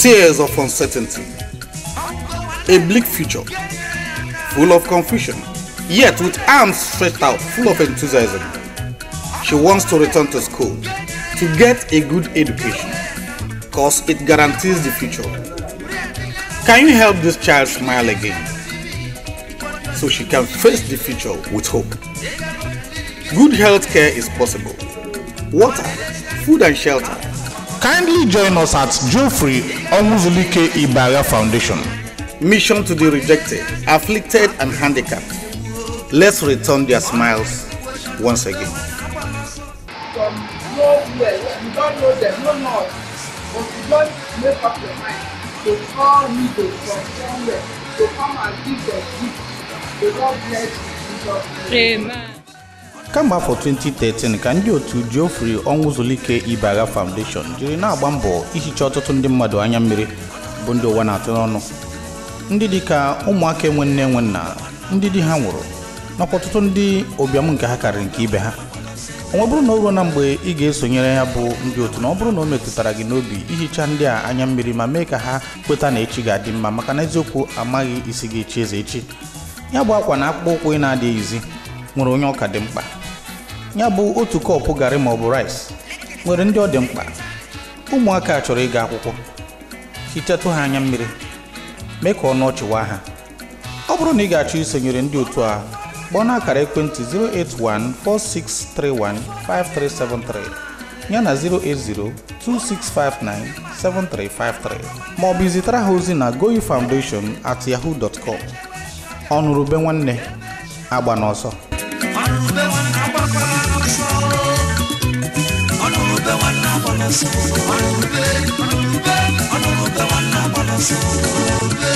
tears of uncertainty, a bleak future, full of confusion, yet with arms stretched out, full of enthusiasm. She wants to return to school to get a good education because it guarantees the future. Can you help this child smile again so she can face the future with hope? Good health care is possible. Water, food, and shelter Kindly join us at Geoffrey Onwuzulike Ibaria Foundation. Mission to the rejected, afflicted, and handicapped. Let's return their smiles once again. From nowhere, you don't know them, no But you don't make up your mind call to come and give their bless you. Amen. kemgbe afọ 2013 ka ndị otu Geoffrey Onwuzulike Ibagha Foundation jiri na-agba mbọ ihicha ọtụtụ ndị mmadụ anya mmiri bụ ndị ụwa na-atụ n'ọnụ ndị dịka ụmụaka enwe nne enwe nna ndị di ha nwụrụ nakwa ọtụtụ ndị ụbịam nke ha karịrị nke ibe ha ọ bụrụ na o na mgbe ị ga-esonyere ya bụ ndị otu na ọ bụrụ na o metụtara gị n'obi ihicha ndị a anya mmiri ma mee ka ha kweta na echi ga-adị mma maka na eziokwu amaghị isi gị echi eze echi ya bụ akwa na akpụkpọ ụkwụ ị na-adịghịzi nwere onye ọka dị mkpa ya bụ otu kọpụ garị maọbụ rais nwere ndị ọ dị mkpa ụmụaka chọrọ ịga akwụkwọ hichatụ ha anya mmiri mee ka ọnụ ọchịwa ha ọ bụrụ na ị ga-achọ isonyere ndị otu a gbọọ na akara ekwentị 08146315373 ya na 08026597353 maọbụ izitara ha ozi na Goyi Foundation at yahoo.com ọnụrụbe nwanne agba n'ọsọ Another one, ¡A one, another